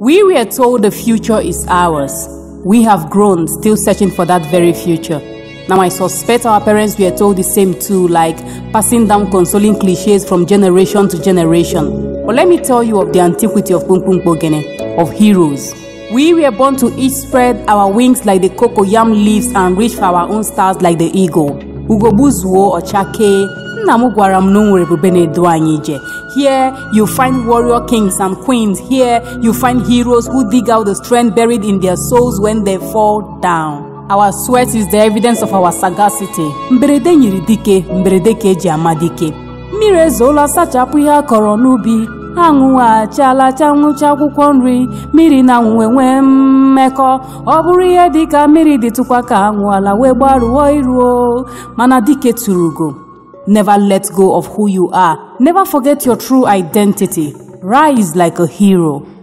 We were told the future is ours. We have grown, still searching for that very future. Now, I suspect our parents were told the same too, like passing down consoling cliches from generation to generation. But let me tell you of the antiquity of Pumpum Bogene, of heroes. We were born to each spread our wings like the cocoyam leaves and reach for our own stars like the eagle. or Chake. nna m gwara m na o nwere ebube na edo anyị ije here you find warrior kings and queens here you find heroes who dig out the strength buried in their souls when they fall down our sweat is the evidence of our sagacity mberede nyiri dike mberede ka eji ama dike mmiri ezoola sachapụ ihe a kọrọ n'ubi anwụghachiala nwụcha akwụkwọ nri mmiri na anwụ enwee mmekọ ọ bụrụ ihe dịka mmiri dịtụkwa ka ala wee gbarụọ iruo mana dike tụrụ ugo Never let go of who you are. Never forget your true identity. Rise like a hero.